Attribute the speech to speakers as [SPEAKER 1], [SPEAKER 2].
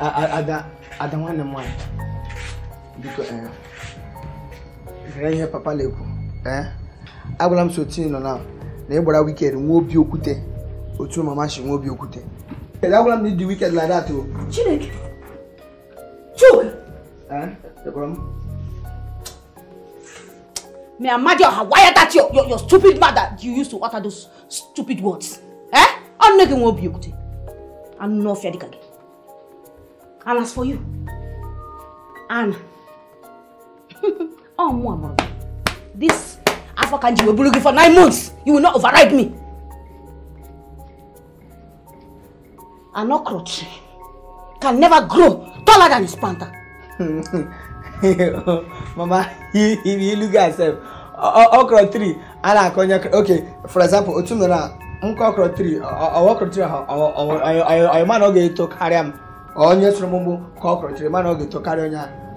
[SPEAKER 1] ada ada nwanne m nwaanyị biko ee ihe papa na-ekwu ee agwara m soti nọ na na ị gbara wikend nwa obi okwute otu mama si nwa obi okwute agwara m na ịdị wikend na dat o chineke chuka
[SPEAKER 2] May Amadioha, why are that your, your, your stupid mother you used to utter those stupid words? Eh? I'm not going to be able to. I'm not fair again. And as for you, Anna, oh, mama, this Afakanji will be looking for nine months. You will not override me. An okra tree can never
[SPEAKER 3] grow taller than his planter. mama, if you look at yourself, okra tree, Anna, okay, for example, Otumera, nkọ okra tree, okra tree, ọ man ọ ga-eto karịa m onye
[SPEAKER 1] soro m ụgbụ ka ọ kọrọ chere mana ọ ga-eto onye ahụ